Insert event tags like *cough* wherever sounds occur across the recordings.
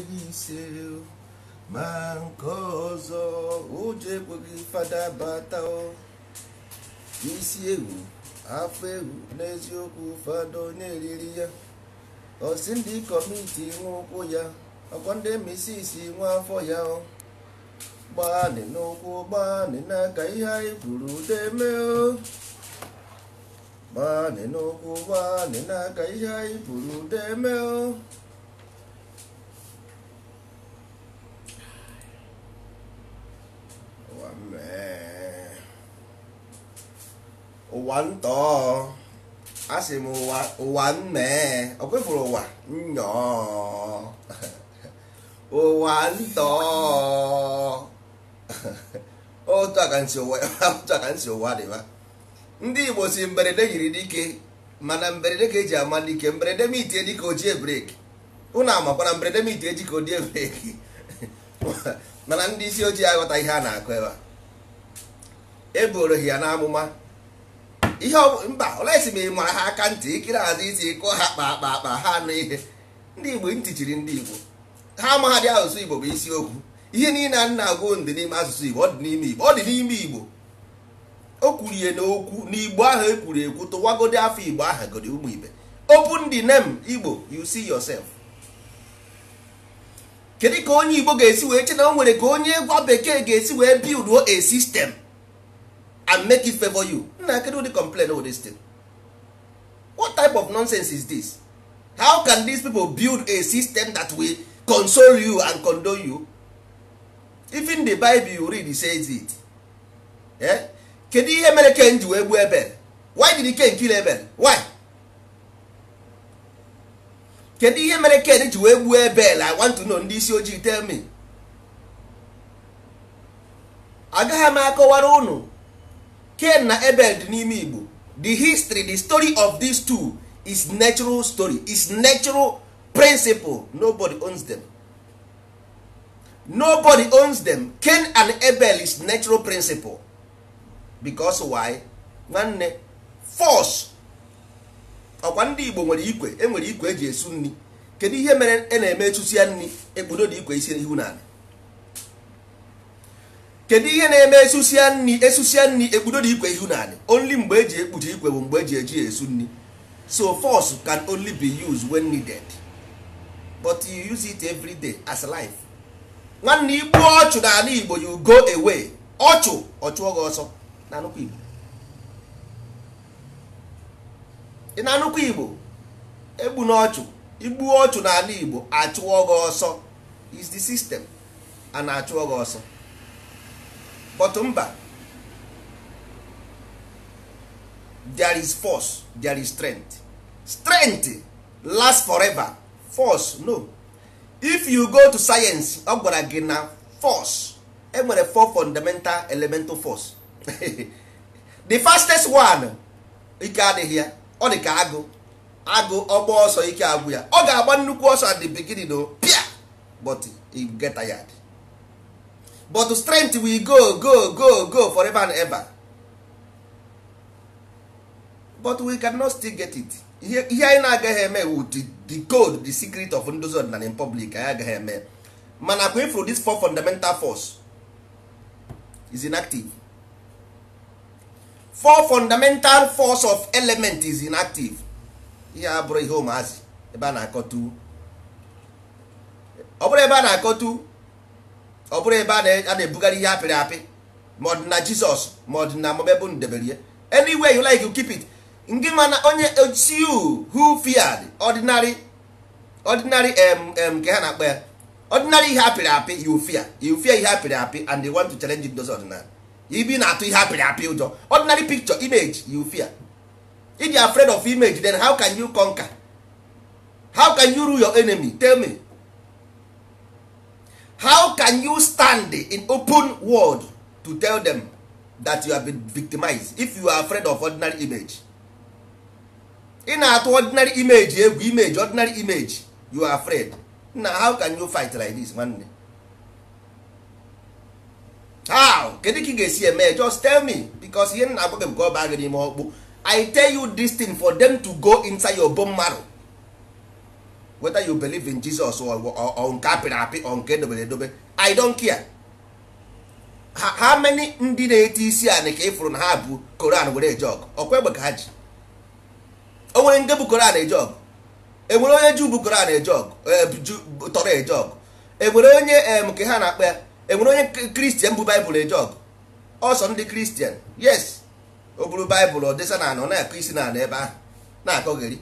Ebinseu mankozo uje kwogi fada bata o isi ewu afọ ewu n'eziokwu fada onye eriri ya osi ndị kọmiti nwa ụkwụ ya ọkwa ndị misisi nwa afọ ya o gbaanị n'ụkwụ gbaanị n'aka ihe anyị kwuru deme o gbaanị n'ụkwụ gbaanị n'aka ihe anyị kwuru deme o ụwa ntọọ asị m ụwa ụwa mmee ọ kwefuru ụwa nnọọ *laughs* ụwa ntọọ *laughs* otu aka nsi ụwa otu aka nsi ụwa dịba ndị igbo si mberede yiri dike mana mberede ka eji ama dike mberede mitie itie dịka ojie breki ụnụ amakwana mberede mitie itie ji ka odie breki *laughs* mana ndị isi ojii aghọta ihe a na-akụ ebe a eboro ya n'amụma ihe mba olesi ma ị mara ha aka ntị ikiri azụ isi kụọ ha kpa akpa akpa ha anụ ihe ndị igbo ntị ndị igbo ha amaghadị asụsụ igbo bụ okwu. ihe niile a nna agụ ndị n'ime asụsụ igbo ọ dị n'ime igbo ọ dị n'ime igbo o kwuru ihe n'okwu n'igbo ahụ ekwuru ekwu tụwagodi afọ igbo aha godi ụmụ ibe open the name igbo you see yourself kedu ka onye igbo ga-esi wee che na o nwere ka onye gwa bekee ga-esi wee build a system and make it favor you nna kedu ụdị complain all this thing what type of nonsense is this how can these people build a system that will console you and condone you even the bible you read says it eh? kedu ihe mere ken ji wee gbuo ebel why did ken kill ebel why kedu ihe mere ken ji wee gbuo ebel i want to know ndị isi ojii tell me agaghị m akọwara ụnụ ken na ebel dị n'ime Igbo the history the story of these two is natural story is natural principle nobody owns them nobody owns them ken and ebel is natural principle because why nwanne force ọkwa ndị Igbo nwere ikwe enwere ikwe eji esu nri kedu ihe mere a e na-eme echusi ya nri ekpodo dị ikwe isi ihu n'ala kedu ihe na-eme esusia nri esusia nri ekpudo ikwe ihu naanị only mgbe eji ekpuchi ikwe bụ mgbe eji eji esu nri so force can only be used when needed but you use it every day as life nwanne igbu ọchụ n'ala igbo you go away ọchụ ọchụọ gị ọsọ na nnukwu igbo ị na nnukwu igbo egbu na ọchụ igbu ọchụ n'ala igbo achụọ gị ọsọ is the system a na-achụọ gị ọsọ but mba there is force there is strength strength last forever force no if you go to science ọ gwara gị na force enwere four fundamental elemental force *laughs* the fastest one ike adịghị ya ọ dị ka agụ agụ ọgba ọsọ ike agwụ ya ọ ga-agba nnukwu ọsọ at the beginning o pia but he get tired but strength will go go go go forever and ever but we cannot still get it ihe anyị na-agaghị eme wu the gold the secret of ndozi and in public anyị agaghị eme mana kwa ifru this four fundamental force is inactive four fundamental force of element is inactive ihe a bụrụ ihe ụmụazị ebe a na-akọtu ọ bụrụ ebe a na-akọtu ọ bụrụ ebe a na-ebugharị ihe apịrị apị ma ọ dị na jizọs ma ọ dị na mọbebụ ndebere ya anyway you like you keep it ngị mana onye uh, you who feared ordinary ordinary um, um, ka ha na-akpọ ya ordinary ihe apịrị apị you fear you fear ihe apịrị apị and they want to challenge those ordinary ibi na-atụ ihe apịrị apị ụjọ ordinary picture image you fear if you are afraid of image then how can you conquer how can you rule your enemy tell me how can you stand in open world to tell them that you have been victimized if you are afraid of ordinary image ị na-atụ ordinary image egwu eh, image ordinary image you are afraid na how can you fight like this nwanne how kedu ka ị ga-esi eme just tell me because ihe na-agwa gị nke ọ baa gị n'ime ọkpụ i tell you this thing for them to go inside your bone marrow whether you believe in Jesus or or nke apịrị apị or nke edobere edobe I don't care ha many ndị na ete isi a ka ịfụrụ na ha bụ Koran were eje ọgụ ọkwa egbe ka ha ji o nwere ndị bụ Koran eje ọgụ enwere onye Juu bụ Koran eje ọgụ e, tọrọ eje ọgụ enwere onye em ka ha na-akpa ya enwere onye kristian bụ baịbụl eje ọgụ ọsọ ndị kristian yes o buru baịbụl ọ dịsa na anọ na-akụ isi na anọ ebe ahụ na-akọgheri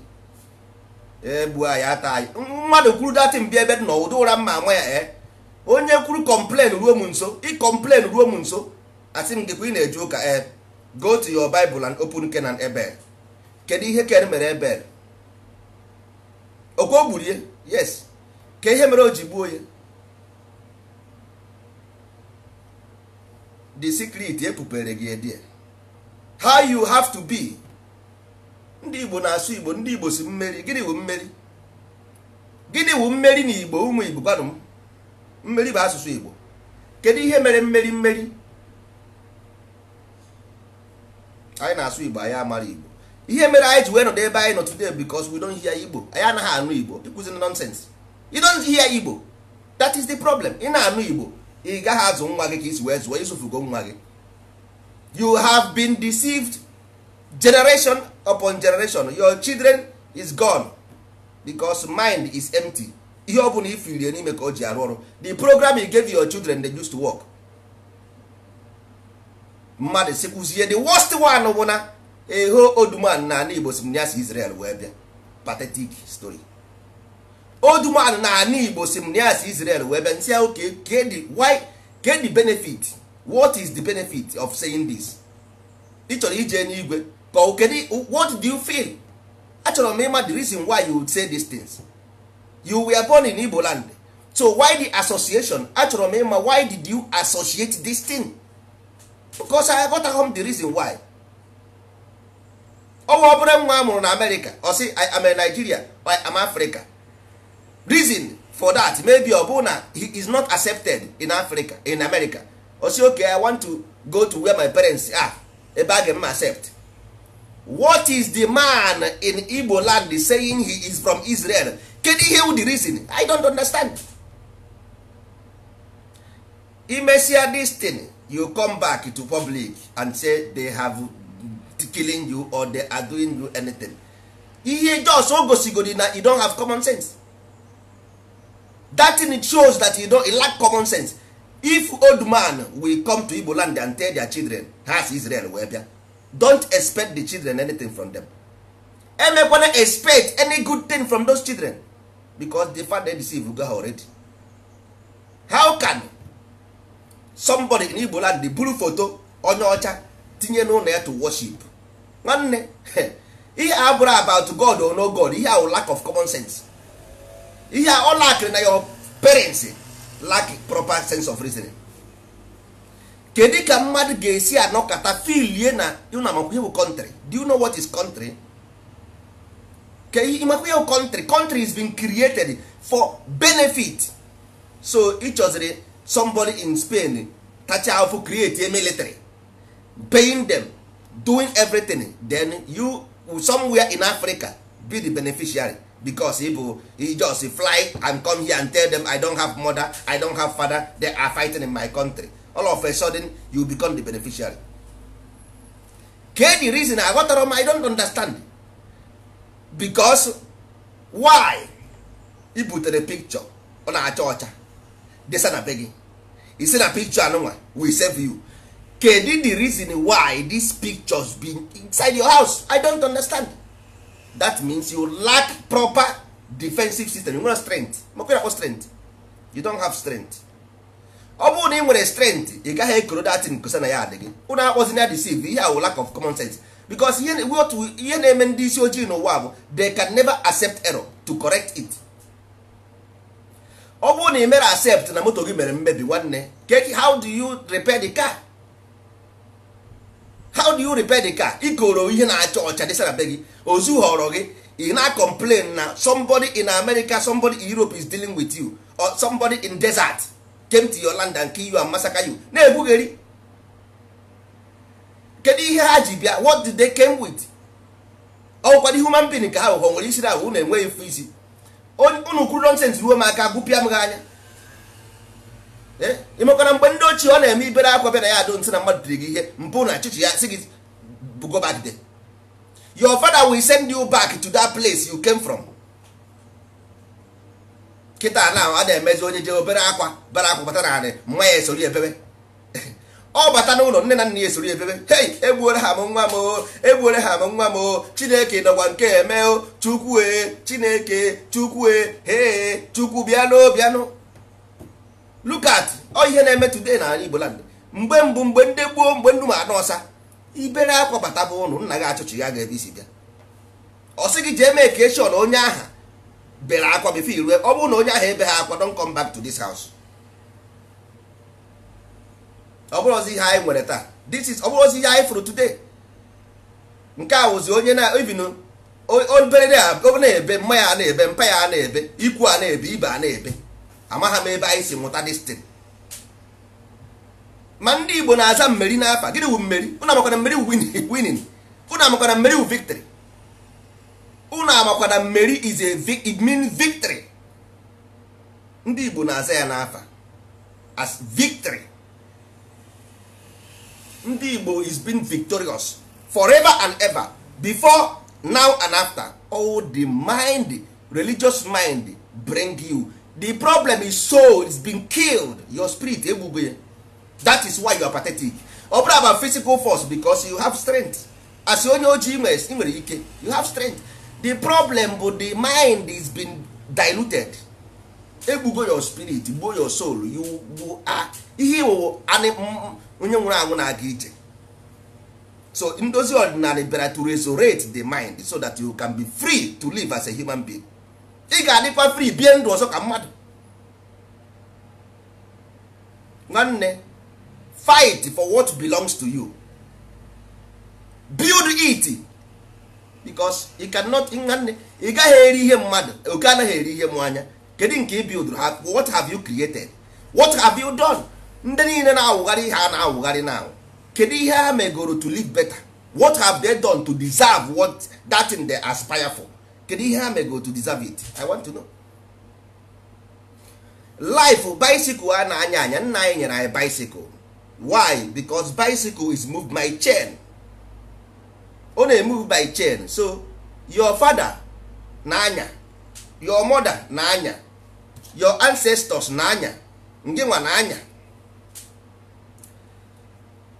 egbuo anyị ata anyị mmadụ kwuru dati mbịa ebe dị na ụra mma nwa ya eh. onye kwuru kọmplen ruo m nso ịkọmplen ruo m nso asị m dịkwa ị na-eji ụka e go to your Bible and open Kenan Ebel kedu ihe ken mere Ebel okwe o gburie yes ka ihe mere o ji gbuo ya the secret epupere gị edie eh, how you have to be ndị igbo na-asụ igbo ndị igbo si mmeri gịnị wụ mmeri gịnị wụ mmeri na igbo ụmụ igbo gwanụ m mmeri bụ asụsụ igbo kedu ihe mere mmeri mmeri anyị na-asụ igbo anyị amara igbo ihe mere anyị ji wee nọdụ ebe anyị nọ today because we don't hear igbo anyị anaghị anụ igbo ịkụziri nonsense you don't hear igbo that is the problem ị na-anụ igbo ị gaghị azụ nwa gị ka isi wee zụọ isufugo nwa gị you have been deceived generation upon generation your children is gone because mind is empty ihe ọ bụla ifirie n'ime ka o ji arụ ọrụ the program you gave your children they used to work mmadụ sikwuzie the worst one bụ na eho oduman na ana igbo si m ya Israel wee bịa pathetic story oduman na ana igbo si m ya Israel wee bịa nsị ahụ get the e e benefit what is the benefit of saying this ịchọrọ ije n'igwe But kedu what do you feel? Achọrọ m ịma the reason why you would say these things. You were born in Igbo land. So why the association? Achọrọ m ịma why did you associate this thing? Because I got home the reason why. Ọnwa obere nwa a in na America Or oh, see, I am in Nigeria or I am Africa. Reason for that maybe ọ bụ na he is not accepted in Africa in America. Or oh, sị okay I want to go to where my parents are ebe a ga m accept what is the man in igbo land saying he is from israel Can he hear the reason i don't understand imesia this thing you come back to public and say they have killing you or they are doing you anything ihe just o gosigodi na you don't have common sense that thing shows that you don't lack common sense if old man will come to igbo land and tell their children has israel wee bịa don't expect the children anything from them emekwana expect any good thing from those children because the father deceive go ha already how can somebody in igbo land buru foto onye ọcha tinye n'ụlọ ya to worship nwanne *laughs* ihe a bụrụ about god or no god ihe ahụ lack of common sense ihe a ọ lakịrị na your parents lack proper sense of reasoning kedu ka mmadụ ga-esi anọkọta filie na ihe bụ country do you know what is country Kedi ịmakwa country country is being created for benefit so ịchọziri somebody in Spain tacha afụ create a military paying them doing everything then you somewhere in Africa be the beneficiary because ịbụ he just fly and come here and tell them I don't have mother I don't have father they are fighting in my country all of a sudden you become the beneficiary the reason I aghọtara I i don't understand because why put the picture ọ na-acha ọcha desa na be gị said na picture anụnwa we save you kedi the reason why picture pictures be inside your house i don't understand that means you lack proper defensive system you want strength strength you don't have strength ọ bụrụ na ị nwere strength ị gaghị ekoro dat kosa na ya adị gị ụnụ akpọzi na deceive ihe ahụ lack of common sense because ihe na-eme ndị isi ojii n'ụwa bụ they can never accept error to correct it ọ bụrụ na ị mere accept na moto gị mere mmebi nwanne how do you repair the car how do you repair the car ikoro ihe na-acha ọcha dị na be gị ozu họrọ gị ị na-complain na somebody in America somebody in Europe is dealing with you or somebody in desert came to your land and kill you and massacre you na ebugheri kedu ihe ha ji bịa what did they came with ọgwụkwadị human being ka ha ụghọ nwere isiri na unu enweghị fụ isi unu kwuru nonsens ruo m aka gụpịa m gị anya imekwana eh? mgbe ndị ochie ọ na-eme ibere akwa bịa na ya adụ ntị na mmadụ dịrị gị ihe mpụ na chịchị ya sị gị go your father will send you back to that place you came from kịta na a na-emezi onye jee obere akwa bara akwa bata na anị mma ya esori ebebe ọ *laughs* oh, bata n'ụlọ nne na nna ya esori ebebe hei eh, eh, eh. oh, oh, egbuore ha m nwa m o egbuore ha m nwa m chineke nọkwa nke eme o chukwue chineke chukwue hee chukwu bịanụ bịanụ lukat ọ ihe na-eme today na ala igbo land mgbe mbụ mgbe ndị gbuo mgbe nnu ma anụ ọsa ibere akwa bata bụ ụlọ nna gị achụchi ya ga ebe isi bịa ọ sị gị jee mee ekeshọn onye aha bere akwa bifo irue ọ bụrụ na onye ahụ ebe ha akwa don come back to this house ọ bụrụ ozi ihe anyị nwere taa this is ọ bụrụ ozi ihe anyị fụrụ today nke a wụzi onye na even obere a na-ebe mma ya na-ebe mpa ya na-ebe ikwu a na-ebe ibe a na-ebe amagha m ebe anyị si mụta destin ma ndị Igbo na-aza mmeri n'afa gịnị wu mmeri ụnụ amakwana mmeri winin ụnụ amakwana mmeri wu victory unu amakwa na mmeri is a it means victory ndị igbo na-aza ya n'afa as victory ndị igbo is been victorious forever and ever before now and after all oh, the mind religious mind bring you the problem is soul is been killed your spirit egbugo ya that is why you are pathetic ọ bụrụ about physical force because you have strength as onye ojii nwere ike you have strength the problem bụ the mind is been diluted egbugo your spirit gbuo your soul you ihe iwụ mm, mm, onye nwụrụ anwụ na-aga ije so ndozi ọdịnala bịara to resurrect the mind so that you can be free to live as a human being ị ga-adịkwa free bie ndụ ọzọ ka mmadụ nwanne fight for what belongs to you build it because you cannot nwanne ị gaghị eri ihe mmadụ oke anaghị eri ihe mmanya kedu nke ị bidoro ha what have you created what have you done ndị niile na-awụgharị ihe a na-awụgharị na kedu ihe ha megoro to live better what have they done to deserve what that thing they aspire for kedu ihe ha megoro to deserve it i want to know life bicycle a na-anya anya nna anyị nyere anyị bicycle why because bicycle is moved by chain ọ na-emove by chain so your father na-anya your mother na-anya your ancestors na-anya ndị nwa na-anya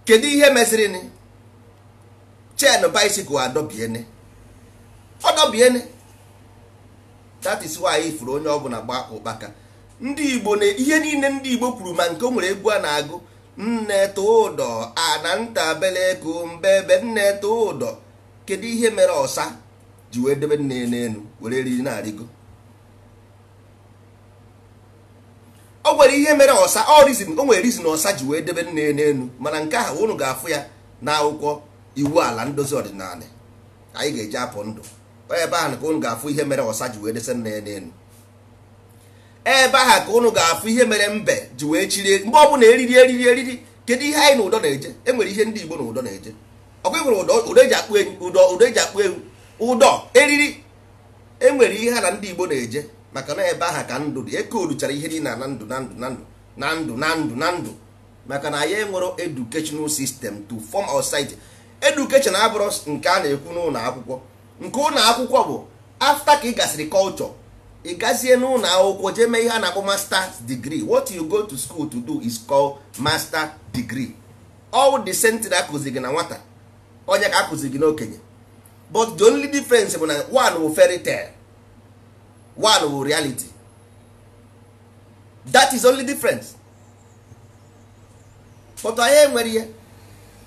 kedu ihe meziri chain bicycle adọbiene ọdọbiene that is why ifuru onye ọbụla gba ụkpaka ndị Igbo na ihe niile ndị Igbo kwuru ma nke o nwere egwu a na-agụ nne tụdọ anantabeleko ebe nne ụdọ kedu ihe mere ọsa ji wee debe nne n'elu were eriri na-arịgo o nwere ihe mere ọsa ọ rizin o nwere rizin ọsa ji wee debe nne n'elu mana nke ahụ unu ga-afụ ya n'akwụkwọ iwu ala ndozi ọdịnala anyị ga-eji apụ ndụ ebe ahụ ka unu ga-afụ ihe mere ọsa ji wee dese nne n'elu ebe aha ka ụnụ ga-afụ ihe mere mbe ji wee chirie mgbe ọ bụla eriri eriri eriri kedu ihe anyị na ụdọ na-eje enwere ihe ndị Igbo na ụdọ na-eje ọkwa ụdọ eji akpụ ewu ụdọ eji akpụ ewu ụdọ eriri enwere ihe ha na ndị Igbo na-eje maka na ebe aha ka ndụ dị ekooduchara ihe niile na ndụ na ndụ na ndụ na ndụ na ndụ na ndụ maka na anyị enwero educational sistem to form our society education nke a na-ekwu n'ụlọ akwụkwọ nke ụlọ akwụkwọ bụ afta ka ị gasịrị culture ị gazie n'ụlọ akwụkwọ jee mee ihe a na-akpọ master degree what you go to school to do is called master degree all the sentry akụzi gị na nwata onye ka akụzi gị n'okenye but the only difference bụ na one wụ fairy tale one wụ reality that is only difference but I enwere ihe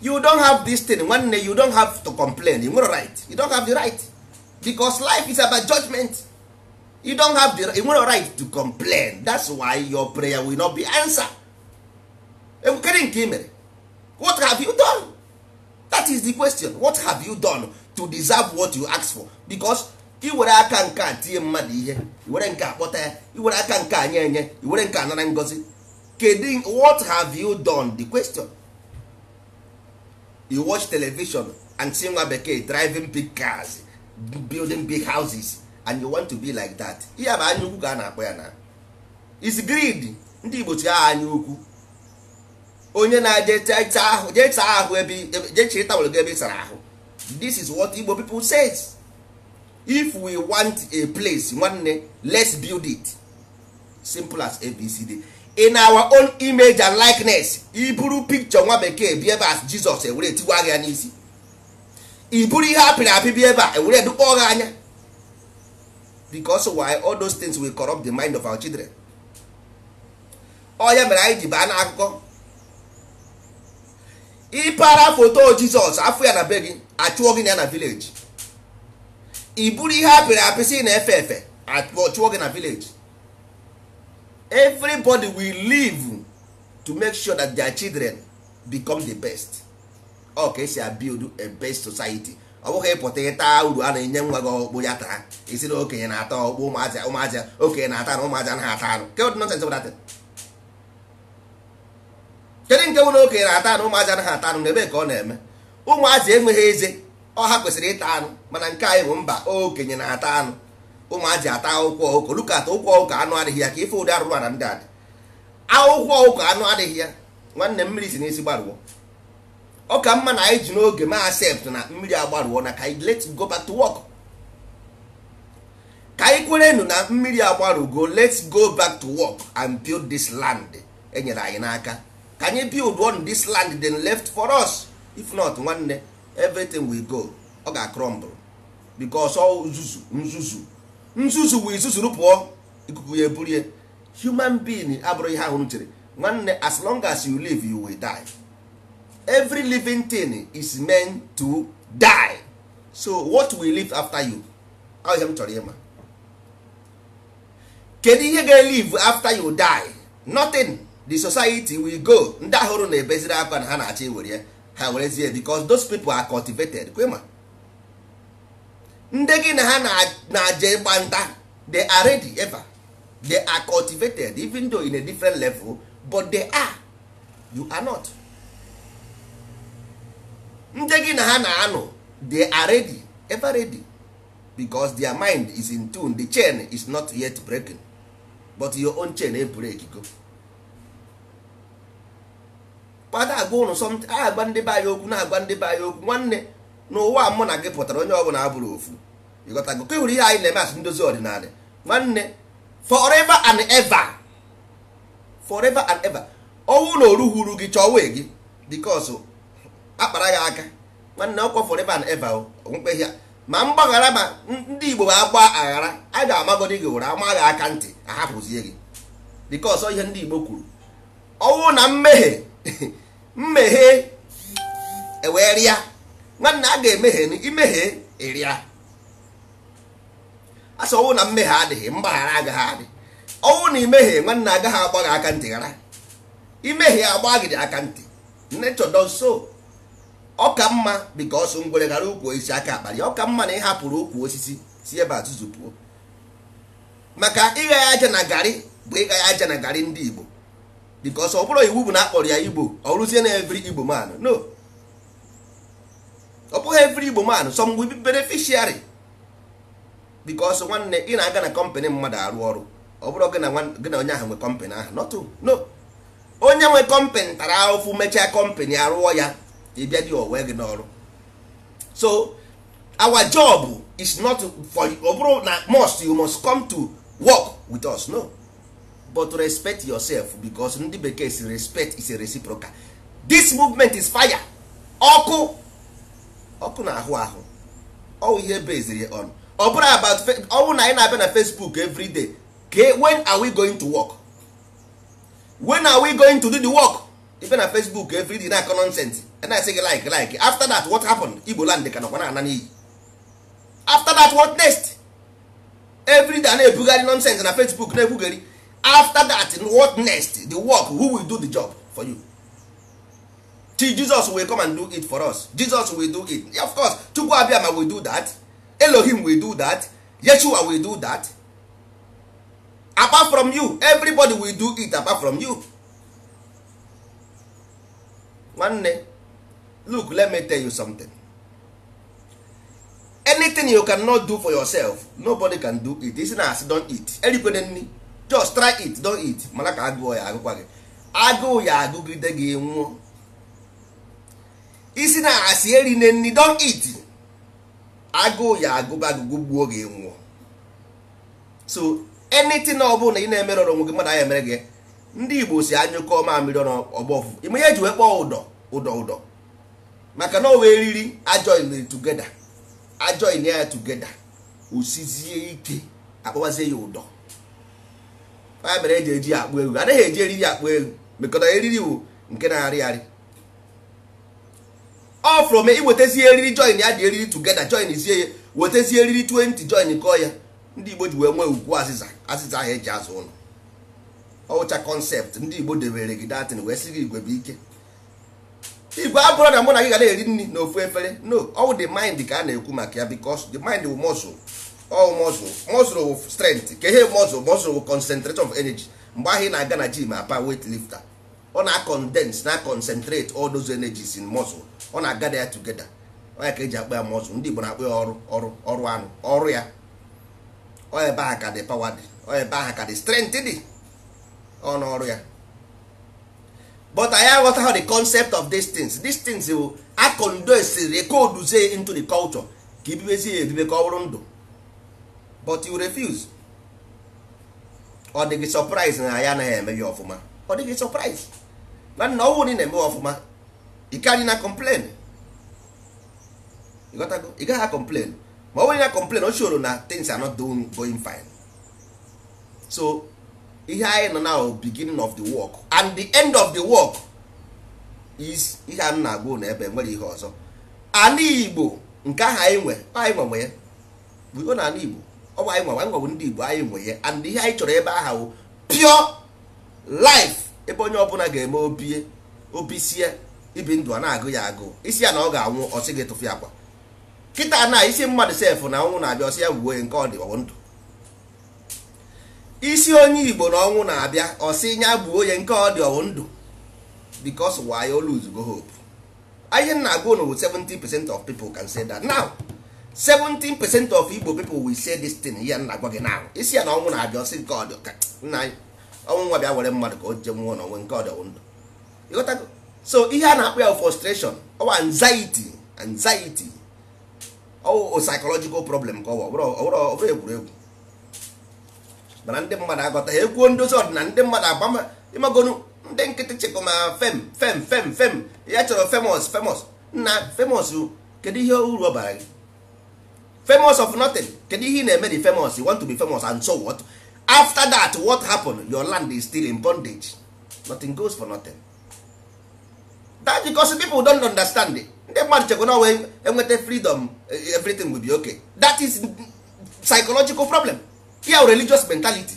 you don't have this thing nwanne you don't have to complain you nwere right you don't have the right because life is about judgment you don't have the you nwere right to complain that's why your prayer will not be answered. enwekere nke mere what have you done? that is the question what have you done to deserve what you ask for because ka iwere aka nke a tinye mmadụ ihe iwere nke akpọta ya iwere aka nke anya enye iwere nke anara ngozi kedu what have you done the question you watch television and see nwa bekee driving big cars building big houses and you want to be like that ihe bụ anya ukwu ka a na-akpọ ya na is greed ndị Igbo chi aha anya ukwu onye na-je jee ahụ ebe jee chiri tawụl gị ebe ị sara ahụ this is what Igbo people says if we want a place nwanne let's build it simple as ABCD in our own image and likeness iburu picture nwa bekee bi ebe as Jizọs ewere tigwa gị ya n'isi iburu ihe apịrị apị bi ebe a ewere edukpọ gị anya because why all those things will corrupt the mind of our children onye oh, mere anyị ji baa n'akụkọ ịpara foto jizọs afọ ya na be gị achụọ gị na ya na vileji i ihe apịrị si na-efe efe achụọ gị na vileji everybody will live to make sure that their children become the best ọ oh, ka esi build a best society ọ bụghị ịpụta ịta uru a na-enye nwa gị ọkpụ ya taa isi na okenye na-ata ọkpụ ụmụazị okenye na-ata na ụmụazị anaghị ata anụ kedu nke bụ na okenye na-ata anụ ụmụazị anaghị ata anụ n'ebe ka ọ na-eme ụmụazị enweghị eze ọha kwesịrị ịta anụ mana nke anyị bụ mba okenye na-ata anụ ụmụazị ata akwụkwọ ụkọ lukata ụkwụ ọkụkọ anụ adịghị ya ka ife ụdị arụrụ na ndị adị akwụkwọ ụkọ anụ adịghị ya nwanne mmiri si n'isi gbarụọ ọ ka mma na anyị ji n'oge ma accept na mmiri agbarụọ na ka anyị let go back to work ka anyị kwerenu na mmiri agbarụgo let's go back to work and build this land enyere anyị n'aka ka anyị build on this land then left for us if not nwanne everything will go ọ ga crumble because ọ nzuzu nzuzu nzuzu wee zuzuru pụọ ikuku ya eburie human being abụrụ ihe ahụ chere nwanne as long as you live you will die. every living thing is meant to die so what will live after you ahụ ihe m chọrọ ma kedu ihe ga live after you die nothing the society will go ndị ahụrụ na-ebeziri na ha na-achọ iwere ya ha werezie because those people are cultivated kwema ndị gị na ha na ịgba nta they are ready ever they are cultivated even though in a different level but they are you are not ndị gị na ha na-anụ they are ready ever ready because their mind is in tune the chain is not yet breaking but your own chain e break go kpata agwa ụnụ sọmt agwa ndị be anyị okwu na-agwa ndị be anyị okwu nwanne n'ụwa mụ na gị pụtara onye ọbụla abụrụ ofu ịghọtago ka hụrụ ihe anyị na-eme asị ndozi ọdịnala nwanne forever and ever forever and ever owu na oruhuru gị chọwe gị because akpara ya aka nwanne ọkwa forever and ever okpukpe ya ma mgbaghara ma ndị igbo agba aghara a ga-amagodi gị ụra amaghị aka ntị ahapụzie gị dịka ọsọ ihe ndị igbo kwuru ọnwụ na mmehie *laughs* mmehie ewee rịa nwanne a ga-emehie imehie ịrịa e asọ ọnwụ na mmehie adịghị mgbaghara agaghị adị ọnwụ na imehie nwanne agaghị agba gị aka ntị ghara imehie agba gị aka ntị nne does nso. ọ ka mma because ngwere gara ukwu osisi aka akpara ọ ka mma na ị hapụrụ ukwu osisi si ebe pụọ. maka ịgha ya aja na garị bụ ịgha ya aja na garị ndị igbo because ọ bụrụ iwu bụ na akpọrọ ya igbo ọ rụzie na every igbo man no ọ bụghị every igbo man some will be beneficiary because nwanne ị na-aga na kọmpanị mmadụ arụ ọrụ ọ bụrụ gị na onye ahụ nwe kọmpanị ahụ not no onye nwe kọmpanị tara ahụfụ mechaa kọmpanị arụọ ya ịbịa dị owe gị n'ọrụ so our job is not for ọ bụrụ na must you must come to work with us no but respect yourself because ndị bekee si respect is a reciprocal this movement is fire ọkụ ọkụ na ahụ ahụ ọwụ ihe beziri on ọ bụrụ about ọwụ na anyị na-abịa na facebook every day okay, when are we going to work when are we going to do the work ife na facebook every day na-akọ nonsense I say gị like like after that what happened igbo land ka nọkwa na-ana n'iyi after that what next every day na-ebugharị nonsense na facebook na-ekwugheri after that what next the work who will do the job for you till jesus will come and do it for us jesus will do it of course chukwu abịama will do that elohim will do that yeshua will do that apart from you everybody will do it apart from you nwanne look let me tell you something anything you cannot do for yourself nobody can do it isi na asi don't eat erikwana nni just try it don't eat mana ka agụụ ya agụkwa gị agụụ ya agụgide gị nwụọ isi na asị na nni don't eat agụụ ya agụba agụgụ gbuo gị nwụọ so anything ọ bụla ị na-emere ọrụ nwe gị mmadụ anya emere gị ndị Igbo si anyụkọ ọrụ ọgbọ ọfụfụ ime ihe ji wee kpọọ ụdọ ụdọ ụdọ maka na owe eriri ajoin tugeda ajoin ya tugeda osizie ike akpọwazie ya ụdọ ya e eji eji akpụ elu, anaghị eji eriri akpụ egwu mekọta eriri bụ nke na-arị arị ọ fụrụ m iwetazie eriri join ya dị eriri tugeda join zie ya wetazie eriri 20 join kọọ ya ndị igbo ji wee nwee ugwu azịza azịza ahụ eji azụ ụlọ ọwụcha kọnsept ndị igbo debere gị datịn wee sị gị igwe bụ ike igwe abụrụ na mụ na gị ga na-eri nri na ofu efere no all the mind ka a na-ekwu maka ya because the mind will muscle all muscle muscle will strength ka ihe muscle muscle will concentrate of energy mgbe ahụ ị na-aga na gym apa weight lifter ọ na acondense na concentrate all those energies in muscle ọ na aga ya togeda onye ka eji akpa ya muscle ndị Igbo na-akpa ya ọrụ ọrụ ọrụ anụ ọrụ ya ọ ebe aha ka dị pawa dị ọ ebe aha ka dị strength dị ọ ya but I have aghọta how the concept of these things these things will acondesiri coduzie into the culture ka ibibezie edibe ka ọ bụrụ ndụ but you refuse ọ dịghị surprise na ya anaghị eme ya ọfụma ọ dịghị surprise na nna ọnwụ na eme ọfụma ị ka na complain ị gaghị complain ma ọ bụrụ na complain o choro na things are not doing going fine so ihe anyị nọ now beginning of the work and the end of the work is ihe a na-agụ na ebe nwere ihe ọzọ ala igbo nke ahụ anyị nwe anyị nwe nwe ya buo na ala igbo ọ bụ anyị nwe anyị nwewe ndị igbo anyị nwe ya and ihe anyị chọrọ ebe aha wụ pure life ebe onye ọbụla ga-eme obie obi sie ibi ndụ a na-agụ ya agụụ isi ya na ọ ga-anwụ ọsị gị ya akwa kịta na isi mmadụ sef na ọnwụ na-abịa ọsị ya wuo nke ọ dị ndụ isi onye igbo na ọnwụ na-abịa ọsị nya bụ onye nke ọ dị ọwụ ndụ because why you lose go hope ihe m na-agụ na 17 percent of people can say that now 17 percent of igbo people will say this thing ihe m na-agwa gị now isi ya na ọnwụ na-abịa ọsị nke ọ dị nna anyị ọnwụ nwa bịa were mmadụ ka o je nwụọ n'onwe nke ọ dị ọwụ ndụ ịghọtago so ihe a na akpụ ya frustration ọwa anxiety anxiety ọwụ psychological problem ka ọ bụ ọ bụrụ egwuregwu mana ndị mmadụ agọta ha ekwuo ndozi ọdịnala ndị mmadụ agbama ịmagonu ndị nkịtị chekwa ma fem fem fem fem ya chọrọ famous famous na famous kedu ihe uru ọ bara gị famous of nothing kedu ihe ị na-eme dị famous you want to be famous and so what after that what happened your land is still in bondage nothing goes for nothing that because people don't understand it. ndị mmadụ chekwa na enweta freedom everything will be okay that is psychological problem fear religious mentality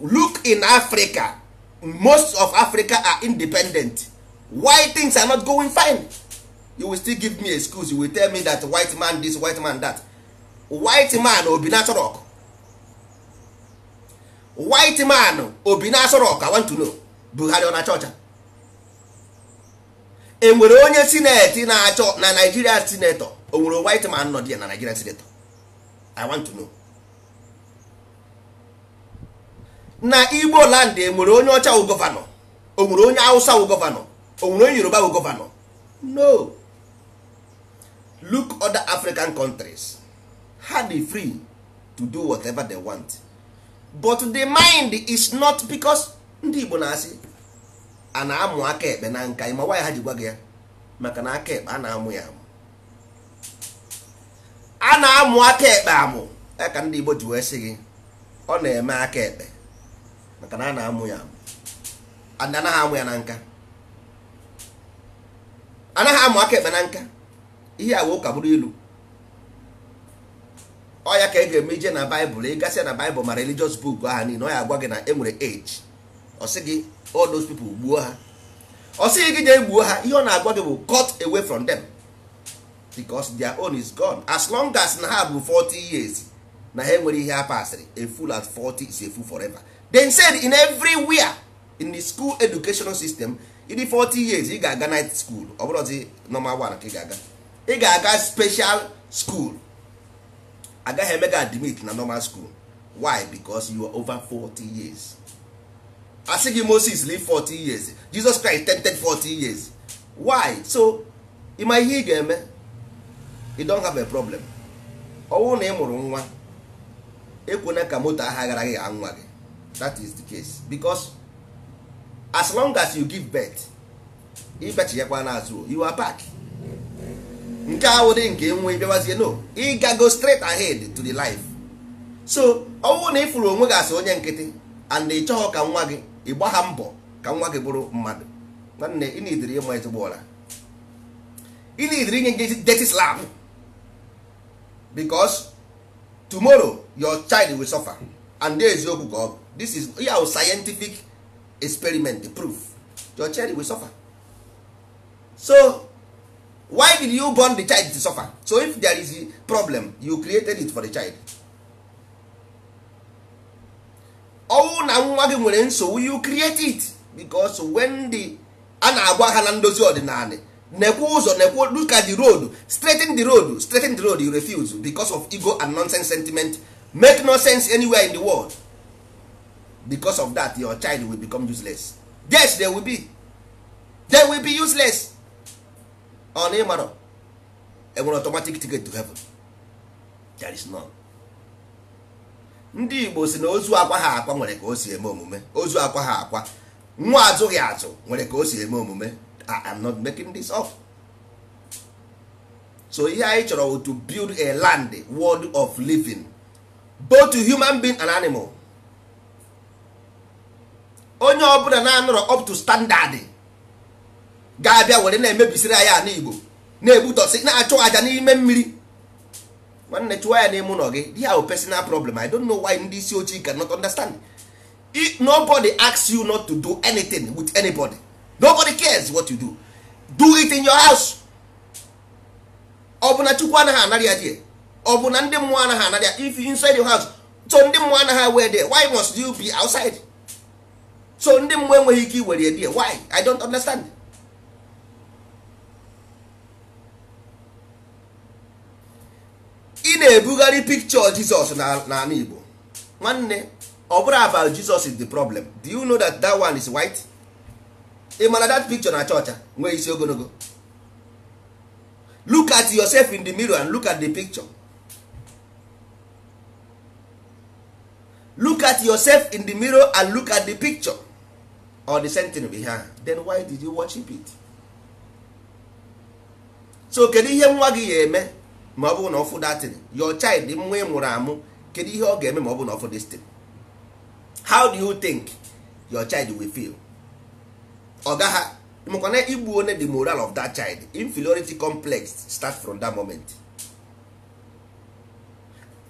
look in africa most of africa are independent why things are not going fine you will still give me excuse you will tell me that white man this white man that white man obi naturok white man obi naturok i want to know buhari e na chọcha enwere onye sineti na-achọ na nigerian senator o nwere white man nọ dị na nigeria senator i want to know na igbo land enwere onye ọcha wụ gọvanọ o nwere onye hausa wụ gọvanọ o onye yoruba wụ gọvanọ no look other african countries ha dey free to do whatever they want but the mind is not because ndị igbo na-asị a na-amụ aka ekpe na nka ịma nwaanyị ha ji gwa gị ya maka na aka ekpe a na-amụ ya amụ na-amụ aka ekpe amụ ya ka ndị Igbo ji wee sị gị ọ na-eme aka ekpe maka na a na-amụ ya amụ anaghị amụ ya na nka anaghị amụ aka ekpe na nka ihe awa ụka bụrụ ilu ọ ya ka ị ga-eme ije na baịbụl ịgasị na baịbụl ma religious buk aha niile ọ ya agwa gị na enwere age ọ sị gị all those people gbuo ha ọ sịghị gị jee gbuo ha ihe ọ na-agwa gị bụ cut away from them. because their own is gone as long as na ha bụ 40 years na ha enwere ihe a a fool at 40 is a fool forever then said in everywhere in the school educational system in the 40 years ị ga-aga night school ọ bụrụzi normal one ka ị ga-aga ị ga-aga special school agaghị eme admit na normal school why because you are over 40 years asị gị Moses live 40 years Jesus Christ 10 40 years why so ịma ihe ị ga-eme you don't have a problem ọ bụrụ na ị mụrụ nwa ekwena ka moto aha gara gị nwa gị that is the case because as long as you give birth ịbachighakwa n'azụ you are back nke awụdị nke nwe bịawazie no ịgago straight ahead to the life so ọ bụrụ na ị fụrụ onwe gị asị onye nkịtị and ị chọghọ ka nwa gị ị ha mbọ ka nwa gị bụrụ mmadụ nwanne ị na-ediri ịma ezigbo ụra ị na-ediri inye nje dirty slam. because tomorrow your child will suffer and there is no God. this is ya yeah, scientific experiment proof your child will suffer so why did you born the child to suffer so if there is a problem you created it for the child ọnwụ na nwa gị nwere nsogbu you create it because when the a na-agwa ha na ndozi ọdịnala nekwe ụzọ nekwe look di the road straighten the road straighten the road you refuse because of ego and nonsense sentiment make no sense anywhere in the world because of that your child will become useless yes they will be they will be useless on ịmarọ enwere automatic ticket to heaven there is none ndị igbo si na ozu akwa ha akwa nwere ka o si eme omume ozu akwa ha akwa nwa azụghị azụ nwere ka o si eme omume I am not making this up. so ihe anyị chọrọ to build a land world of living both to human being and animal onye ọbụla na-anọrọ up to standard ga-abịa were na-emebisiri anya na igbo na-egbutọsị na-achụ aja n'ime mmiri nwanne chụwa ya n'ime ụlọ gị dia personal problem i don't know why ndị isi ojii cannot understand nobody asks you not to do anything with anybody. nobody cares what you do do it in your house ọ na chukwu anaghị anara ya die ọ bụ na ndị mmụọ anaghị anara ya if you inside your house so ndị mmụọ anaghị were there why must you be outside so ndị mmụọ enweghị ike iwere die why i don't understand ị na-ebugharị picture Jesus n'ala Igbo nwanne ọ bụrụ about Jesus is the problem do you know that that one is white? ị mana that picture na chọọcha nwee isi ogologo look at yourself in the mirror and look at the picture look at yourself in the mirror and look at the picture or the sentence behind then why did you worship it so kedu ihe nwa gị ga-eme ma ọ bụrụ na ọ datin your child nwa ị mụrụ amụ kedu ihe ọ ga-eme ma ọ bụrụ na ọ destin how do you think your child will feel ọga ha makwana igbu onye the moral of that child inferiority complex start from that moment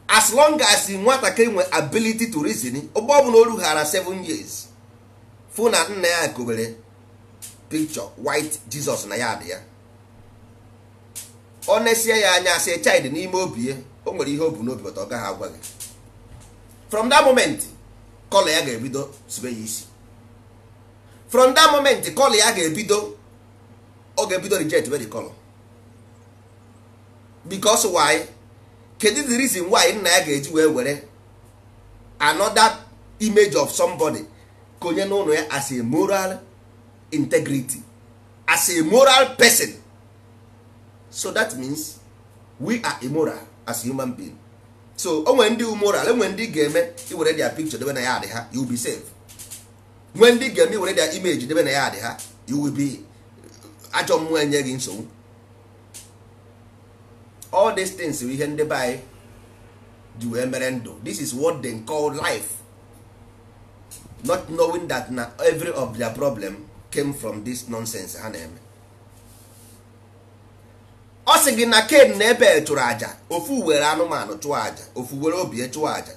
as long as nwatakịrị nwe ability to reason ụgbọ ọbụla o rughara 7 years fụ na nna ya kowere picture white Jesus na ya dị ya ọ nesie ya anya sị child n'ime obi ya o nwere ihe obu n'obi ọ gaghị agwa gị from that moment kọla ya ga-ebido sibe ya isi from that moment kọl ya ga-ebido ọ ga-ebido reject very kọl because why kedu the reason why nna ya ga-eji wee were another image of somebody konye n'ụlọ ya as a moral integrity as a moral person so that means we are immoral as human being so o ndi ndị umoral enwere ndị ga-eme iwere their picture debe na ya adị ha you be safe nwee ndị ga-eme were of imeji debe na ya dị ha iwubi ajọ mmụọ enye gị nsogbu all these things bụ ihe ndị the anyị ji wee mere ndụ this is what they call life not knowing that na every of their problem came from this nonsense ha na-eme ọ sị gị na na aja ofu were anụmanụ chụọ aja ofu were chụọ aja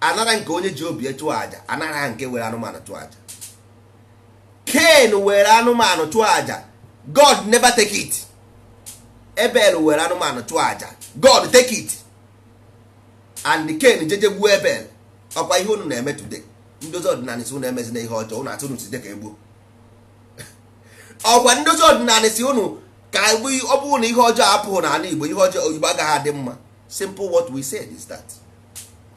anara nke onye ji obi chụọ aja anara nke were anụmanụ chụọ aja ken were anụmanụ chụọ aja god never take it ebel were anụmanụ chụọ aja god take it and ken jeje gbuo ebel ọkwa ihe unu na-eme today ndozi ọdịnala si unu na ihe ọjọọ unu atụ unu site ka egbuo *laughs* ọkwa ndozi ọdịnala si unu ka e ọ bụrụ na ihe ọjọọ apụghị n'ala igbo ihe ọjọọ oyibo agaghị adị mma simple what we said is that.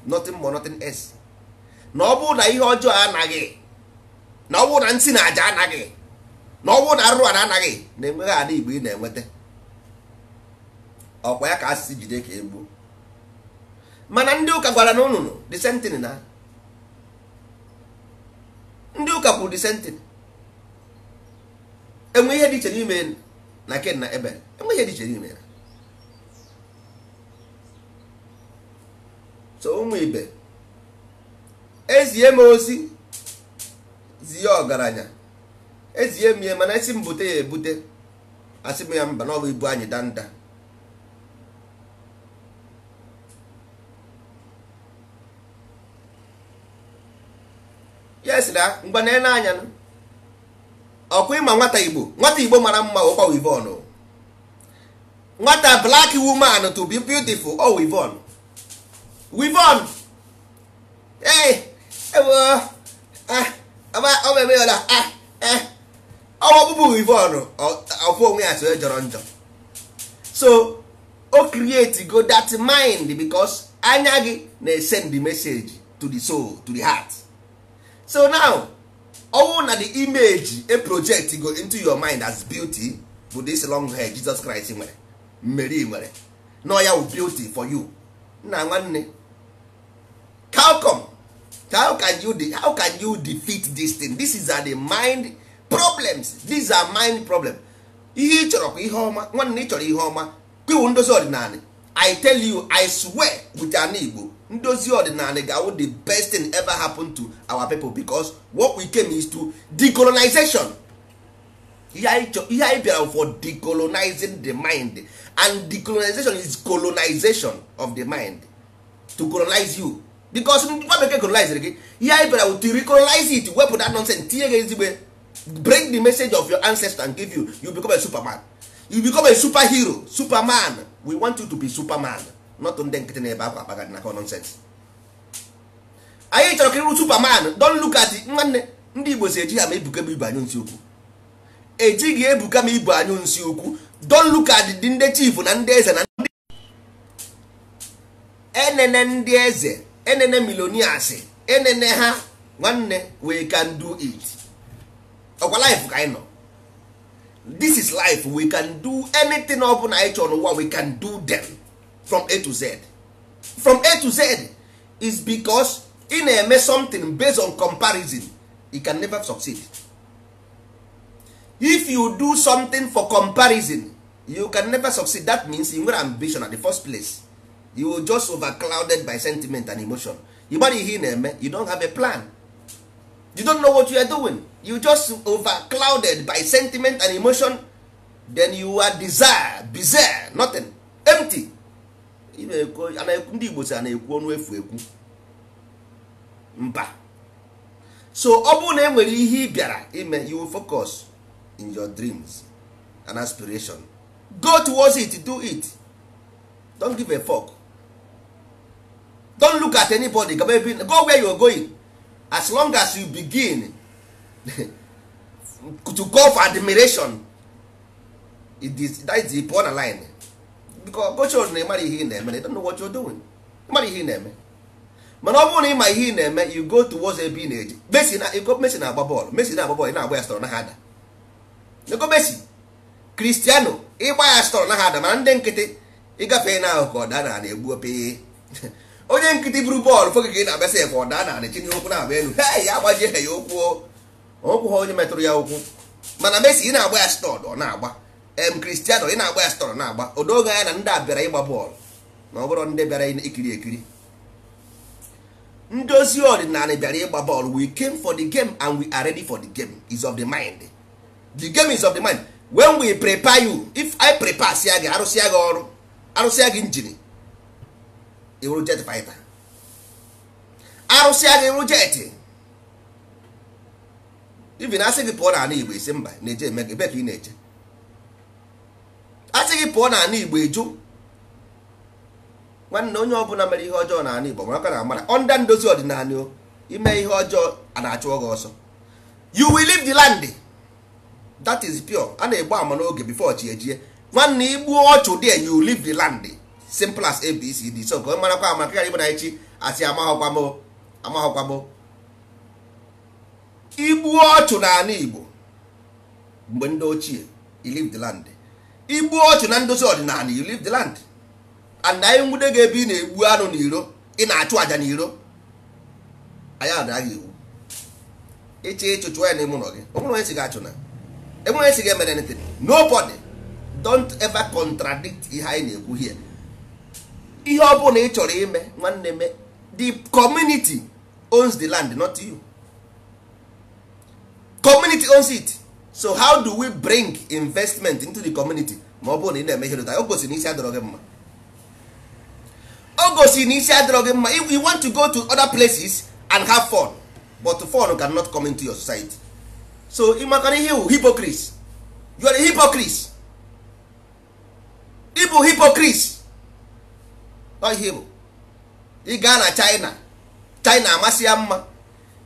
nothing more nothing else na ọ bụrụ na ihe ọjọọ anaghị na ọ bụrụ na nsị na aja anaghị na ọ bụrụ na arụrụ anaghị na-enweghị ala igbo ị na-enweta ọkwa ya ka asịsị jide ka egbuo mana ndị ụka gwara na ụnụnụ disentin na ndị ụka kwuru disentin enwe ihe dị iche n'ime na ken na ebe enwe ihe dị iche n'ime ya tụọ ụmụ ibe ezie m ozi zie ọgaranya ezie m mana esi m bute ya ebute asị m ya mba na ibu anyị danda ya sịra ngwa na ele anya ịma nwata igbo nwata igbo mara mma ọkwa wivon nwata blak woman to be beautiful ọ wivon Wivon ee ewo ọ eme ọla ọwa ọbụbụ Wivon ọfụ onwe ya so eh, jọrọ njọ so o create go that mind because anya gị send the message to the soul to the heart so now oh, na the image a project go into your mind as beauty for this long hair Jesus Christ nwere Mary. nwere No ọ ya beauty for you nna nwanne how come how can you how can you defeat this thing this is a the mind problems these are mind problem ihe ị chọrọ ihe ọma nwanne ị chọrọ ihe ọma kwiwu ndozi ọdịnala i tell you i swear with an igbo ndozi ọdịnala ga the best thing ever happen to our people because what we came is to decolonization ihe anyị bịara for decolonizing the mind and decolonization is colonization of the mind to colonize you because nwa bekee colonizere gị ihe anyị bịara to recolonize it wepụ that nonsense tinye gị ezigbo bring the message of your ancestor and give you you become a superman you become a super hero superman we want you to be superman not ndị nkịtị na-ebe akwa akpaga na nonsense anyị chọrọ ka ịrụ superman don look at nwanne ndị igbo si eji ha ma ebuka m ibu anyụ nsi okwu. ejighị ebuka m ibu anyụ nsi okwu don look at dị ndị chief na ndị eze na ndị enene ndị eze enene millionaires enene ha nwanne we can do it ọkwa life ka anyị nọ this is life we can do anything ọ bụla anyị chọrọ n'ụwa we can do them from a to z from a to z is because ị na-eme something based on comparison you can never succeed if you do something for comparison you can never succeed that means you nwere ambition at the first place you will just overclouded by sentiment and emotion you gbara ihe ị na-eme you don't have a plan you don't know what you are doing you just overclouded by sentiment and emotion then you are desire bizarre nothing empty ndị igbo si a na-ekwu ọnụ efu ekwu mba so ọ bụrụ na enwere ihe ị bịara ime you will focus in your dreams and aspiration go towards it do it don't give a fuck don't look at anybody go where you are going as long as you begin *laughs* to go for admiration it is that is the point line because gochos na ịmara ihe ị na-eme they don't know what you're doing ịmara ihe ị na-eme mana ọ bụrụ na ịma ihe ị na-eme you go towards ebe ị na-eje Messi na ego Messi na-agba bọọlụ Messi na-agba bọọlụ ị na-agba ya stọrọ na ha ada ego Messi Cristiano ịgba ya stọrọ na ha ada mana ndị nkịtị ịgafe na ahụ ka ọ daa na na-egbu opee onye nkịtị buru bọọlụ foge ka ị na-abịa sef ọ daa na chinye okwu na-abịa elu he ya agbaji ha ya ụkwụ ụkwụ ha onye metụrụ ya okwu mana mesi ị na-agba ya stọd ọ na-agba em Cristiano ị na-agba ya stọd na-agba odoge anya na ndị a bịara ịgba bọọlụ na ọ bụrụ ndị bịara ikiri ekiri ndozi ọdịnala bịara ịgba bọọlụ we came for the game and we are ready for the game is of the mind the game is of the mind when we prepare you if I prepare sia gị arụsịa gị ọrụ arụsịa gị injin iwuru jet fighter arụsị anya iwuru jet na asị gị pụọ n'ala igbo isi mba na-eje eme gị ebe ka ị na-eje asị gị pụọ n'ala igbo eju nwanne onye ọbụla mere ihe ọjọọ n'ala igbo mara na amara ọnda ndozi ọdịnala o ime ihe ọjọọ a na-achụ gị ọsọ you will leave the land that is pure a na-egbu ama n'oge bifo chi ejie nwanne igbuo ọchụ dị you leave the land simple as abcd so ka ọ marakwa ama ka igbo na echi asị amaghọkwa amaghọkwam igbu ọchụ n'ala igbo mgbe ndị ochie you leave the land igbu ọchụ na ndozi ọdịnala you leave the land and anyị nwude gị ebe ị na-egbu anụ na iro ị na-achụ aja iro anyị adaghị iwu ịchị ịchụchụ ya n'ime ụlọ gị onwere onye si gị achụna na onye si gị emere ntin nobody don't ever contradict ihe anyị na-ekwu here ihe ọ bụla ị chọrọ ime nwanne me the community owns the land not you community owns it so how do we bring investment into the community ma ọ bụrụ na ị na-eme ihe dota o gosiri adọrọ gị mma o gosiri adọrọ gị mma if you want to go to other places and have fun but fun cannot come into your society so ị makara ihe wụ hypocrite you are a hypocrite ịbụ hypocrite ihe bụ ị gaa na china china amasị ya mma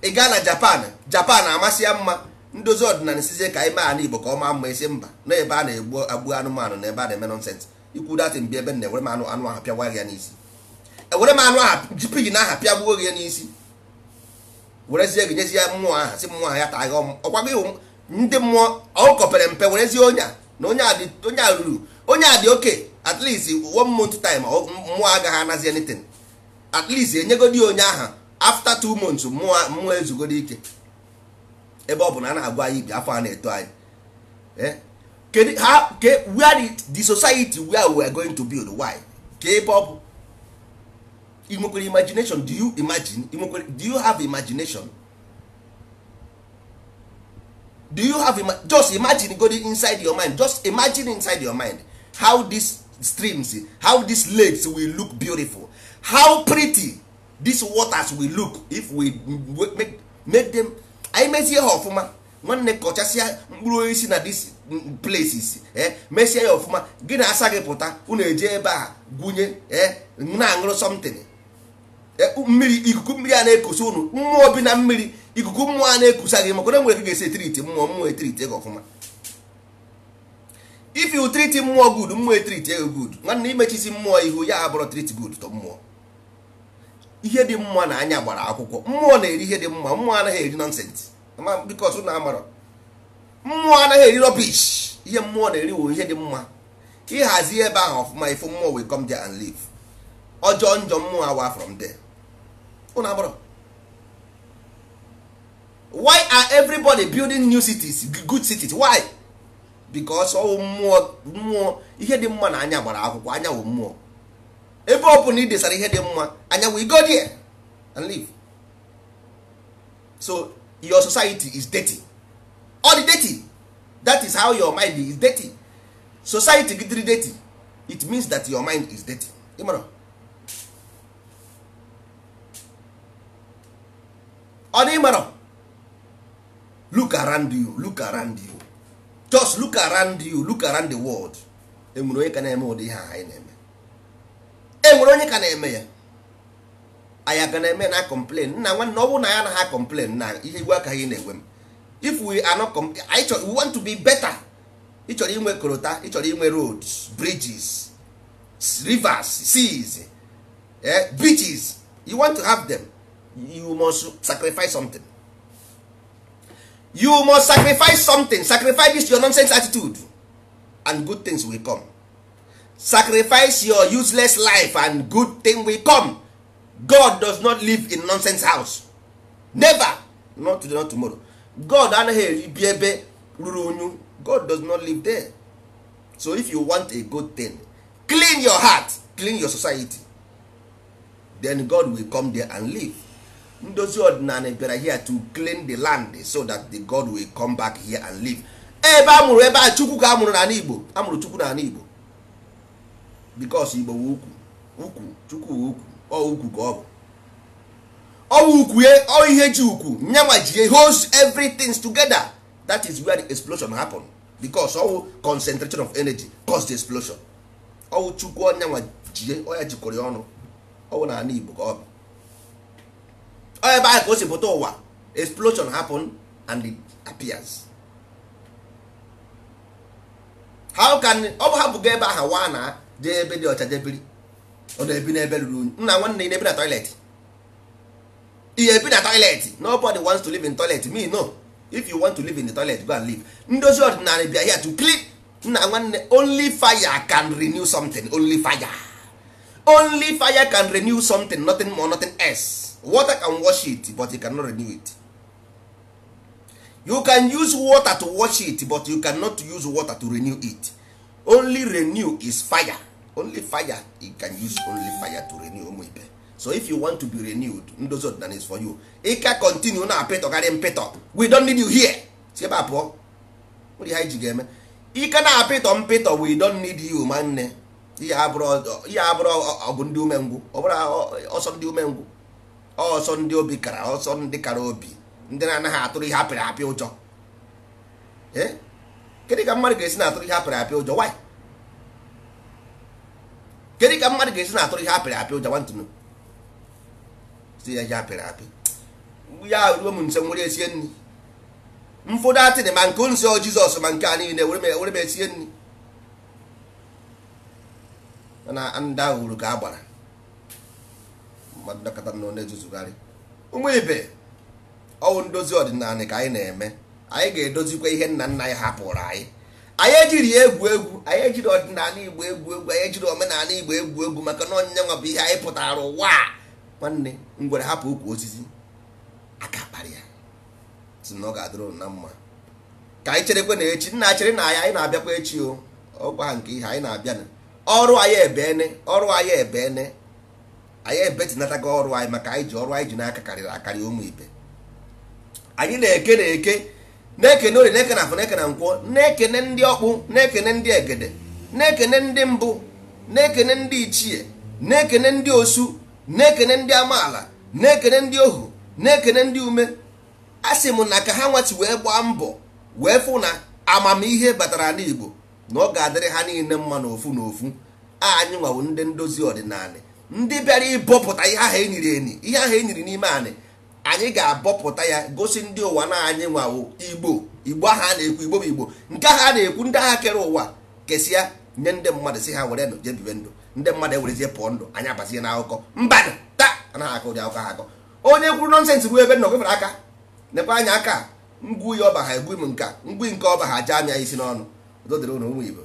ị gaa na japan japan amasị ya mma ndozi ọdịnala sizie ka anyị mee igbo ka ọma maa mma isi mba na ebe a na-egbu agbu anụmanụ na ebe a na-eme nọnsensị ikwu datin bi ebe m na-ewere m anụ anụ ahụ pịagwa ya n'isi ewere m anụ ahụ jipighi na aha pịagbuo gị n'isi werezie gị nyezie mmụọ aha si mmụọ aha ya taa gị ọkwa iwu ndị mmụọ ọ kọpere mpe werezie onye a na onye a ruru onye a dị oke at least one month time mmụọ agaghị anazi anything at least enyegodi onye aha after two months mmụọ mmụọ ezugodi ike ebe ọ bụ na a na-agwa anyị ibi afọ a na-eto anyị eh? ha ke were the society wey we are going to build why ka ebe ị imagination do you imagine ị do you have imagination do you have ima just imagine godi inside your mind just imagine inside your mind how this streams how these lakes will look beautiful how pretty these waters will look if we make, make them anyị mezie ha ọfụma nwanne kọchasịa mkpụrụ osisi na these places eh mesie ya ọfụma gị na asa gị pụta unu eje ebe a gwunye eh na-aṅụrụ something mmiri ikuku mmiri a na-ekusa unu mmụọ bi na mmiri ikuku mmụọ a na-ekusa gị maka na nwere gị ga-esi etiriti mmụọ mmụọ etiriti gị ọfụma if you treat mmụọ good mmụọ etrit ego good nwanne imechisi mmụọ ihu ya abụrụ treat good to mmụọ ihe dị mma na anya gbara akwụkwọ mmụọ na-eri ihe dị mma mmụọ anaghị eri nonsens bikos na amarọ mmụọ anaghị eri rubbish ihe mmụọ na-eri wo ihe dị mma ịhazi ebe ahụ ọfụma ifu mmụọ will come there and live ọjọọ njọ mmụọ awa from there ụnụ amarọ why are everybody building new cities good cities why? because ọwụ mmụọ mmụọ ihe dị mma na anya gbara akwụkwọ anya wụ mmụọ ebe ọ bụla ị hear ihe dị mma anya wụ go there and live so your society is dirty all the dirty that is how your mind is dirty society gidiri dirty it means that your mind is dirty ịmara ọ dị ịmara look around you look around you just look around you look around the world enwere onye ka na-eme ụdị ihe anyị na-eme enwere onye ka na-eme ya anyị aga na-eme na complain nna nwanne ọ bụrụ na ya na ha complain na ihe iwu aka ị na-enwe m if we are not anyị we want to be better ị chọrọ inwe korota ị chọrọ inwe roads bridges rivers seas eh, beaches you want to have them you must sacrifice something you must sacrifice something sacrifice this your nonsense attitude and good things will come sacrifice your useless life and good thing will come god does not live in nonsense house never not today not tomorrow god anaghị bi ebe ruru unyu god does not live there so if you want a good thing clean your heart clean your society then god will come there and live ndozi ọdịnala bịara here to clean the land so that the god will come back here and live ebe a mụrụ ebe a chukwu ka a mụrụ n'ala igbo a mụrụ chukwu n'ala igbo because igbo ukwu ukwu chukwu ukwu ọ ukwu ka ọ bụ ọwụ ukwu ye ọ ihe ji ukwu nyanwa ji holds everything together that is where the explosion happen because ọwụ concentration of energy cause the explosion ọwụ chukwu ọnyanwa jie ọ ya jikọrọ ọnụ ọwụ n'ala igbo ka ọ bụ ebe ahụ ka o si pụta ụwa explosion happen and it appears how can ọ bụ hapụgo ebe ahụ wa na jee ebe dị ọcha jebiri ọ na-ebi n'ebe ruru unyi nna nwanne ị na-ebi na toilet ihe ebi na toilet nobody wants to live in toilet me no if you want to live in the toilet go and live ndozi ọdịnala bịa here to clean nna nwanne only fire can renew something only fire only fire can renew something nothing more nothing else water can wash it but you cannot renew it you can use water to wash it but you cannot use water to renew it only renew is fire only fire you can use only fire to renew ụmụ ibe so if you want to be renewed ndozi ọdịnala is for you Ike ka continue na apịtọgarị mpịtọ we don't need you here si ebe a pụọ nwere ihe ji ga-eme ike na-apịtọ mpịtọ we don't need you ma nne ihe abụrụ ọ bụ ndị umengwụ ọ bụrụ ọsọ ndị umengwụ ọsọ ndị obi kara ọsọ ndị kara obi ndị na-anaghị atụrụ ihe apịrị apị ụjọ e? kedụ ka mmadụ ga-esi na-atụrụ ihe apịrị apị ụjọ why kedụ ka mmadụ ga-esi na-atụrụ ihe apịrị apị ụjọ nwantụnụ si ya ihe apịrị apị ya ruo m nse nwere esie nri mfọdụ atịrị ma nke nsọ jizọs ma nke a niile were m esie nri na ndị ahụ uru ka a gbara mmadụ na na-ezuzugharị ụmụ ibe ọwụ ndozi ọdịnala ka anyị na-eme anyị ga-edozikwa ihe nna nna anyị hapụrụ anyị anyị ejiri egwu egwu anyị ejiri ọdịnala igbo egwu egwu anyị ejiri omenala igbo egwu egwu maka na onye nwa bụ ihe anyị pụtara ụwa nwanne ngwere hapụ ukwu osisi aka kparị ya si na ọ ga-adịrụ na mma ka anyị cherekwe na echi nna chere na anyị anyị na-abịakwa echi o ọgwa nke ihe anyị na-abịa ọrụ anyị ebene ọrụ anyị ebene anyị ebetịnatago ọrụ anyị maka anyị ji ọrụ anyị ji n'aka karịrị akarị ụmụ ibe anyị na-eke na-eke na-ekene ori na-ekene afọ na-ekene na-ekene ndị ọkpụ na-ekene ndị egede na-ekene ndị mbụ na-ekene ndị ichie na-ekene ndị osu na-ekene ndị amaala na-ekene ndị ohu na-ekene ndị ume a sị m na ka ha nwati wee gbaa mbọ wee fụ na amamihe batara n'Igbo na ọ ga-adịrị ha niile mma n'ofu n'ofu anyị nwawo ndị ndozi ọdịnala ndị bịara ịbọpụta ihe ahụ enyiri enyi ihe ahụ enyiri n'ime anyị anyị ga-abọpụta ya gosi ndị ụwa na anyị nwawo igbo igbo ahụ a na-ekwu igbo bụ igbo nke ahụ a na-ekwu ndị agha kere ụwa kesịa nye ndị mmadụ si ha were ndụ jee ndụ ndị mmadụ ewerezie pụọ ndụ anyị abazie na akụkọ taa anaghị akọ ụdị akụkọ ha akọ onye kwuru nọnsensị bụ ebe nọ gefere aka nekwa anya aka ngwu ya ọba ha egbu m nka ngwu nke ọba ha jee anya isi n'ọnụ dodere ụmụ igbo